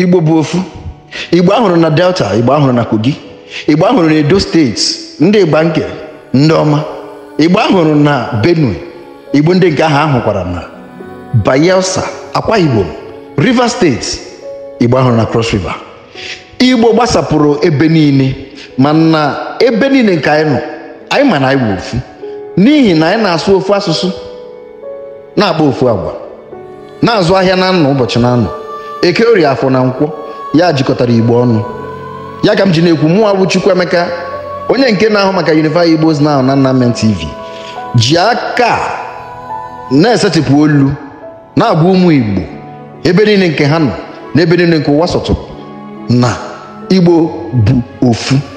igbo bụ ofu igbo ahụrụ na delta igbo ahụrụ na kogi igbo ahụrụ na edo steeti ndị gbanke ndị ọma igbo ahụrụ na benue igbo ndị nke ahụ ahụkwara na bayelsa akwa igbo rivers steeti igbo ahụrụ na cross river igbo gbasapụrụ ebe niile mana ebe niile nke anyị nọ anyị ma na anyị bụ ofu n'ihi na anyị na-asụ ofu asụsụ na-akpa ofu agwa na-azụ ahịa na ụbọchị na eke orie afọ na nkwọ ya jikọtara igbo ọnụ ya ka m ji na-ekwu mụnwa Chukwu Emeka onye nke na-ahụ maka Unify Igbos Now na Nnamdi TV ji aka na-esetịpụ olu na-agwa ụmụ igbo ebe niile nke ha nọ na ebe niile nke ụwa sọtụ na igbo bụ ofu